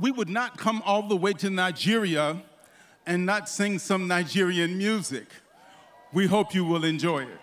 we would not come all the way to Nigeria and not sing some Nigerian music. We hope you will enjoy it.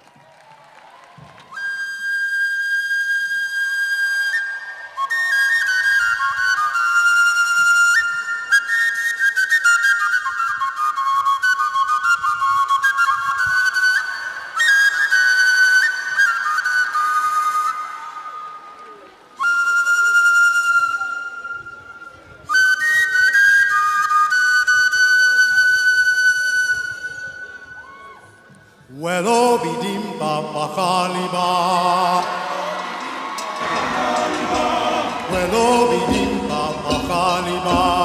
Wello bidim papa haliba. Wello bidim papa haliba.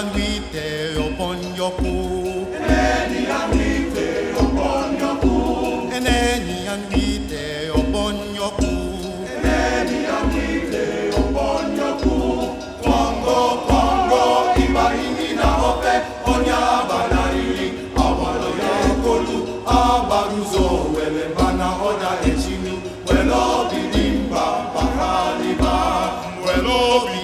anguite upon your pool. Any anguite yoku. your pool. Any anguite upon your pool. Any anguite upon your pool. Congo, Congo, iba ini na hope, onya banari, awalo ya kolu, abaruzo, wele bana oda echimi, welo bidimba, bakaliba, welo bidimba.